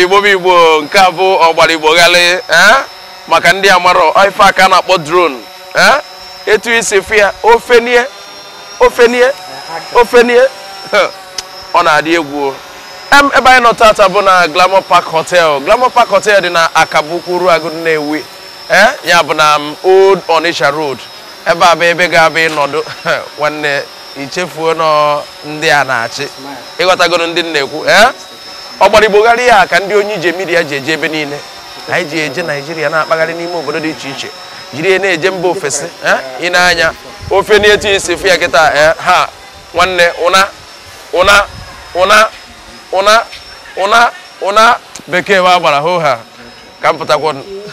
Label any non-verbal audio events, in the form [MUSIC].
igbo m igbo nke a bụ ọgbara eh? maka ndị amarọ ife aka na-akpọ dron eh? etu isi fụ ya ofenie ofenie ofenie ọ na-adị egwu ebe anyị nọ tata bụ na Glamour Park Hotel Glamour Park Hotel dị na Akabukwuru Agụ na-ewe eh? ya bụ na um, Old onisha Road ebe abụ ebe ga-abịa ịnọdụ [LAUGHS] nwanne ichefuo nọ ndị a na-achị ịghọtagoro ndị na-ekwu ọgbarịgbogharị ya ka ndị onye ije mmiri ya ji eje ebe niile na anyị ji eje naijiria na-akpagharị n'ime obodo dị iche iche jiri ya na-eje mba ofesi ị na-anya ofe na-eti isi fụ ya kịta eh, ha nwanne ụna ụna ụna ụna ụna ụna bekee wa gbara hoo ha ka m pụtakwa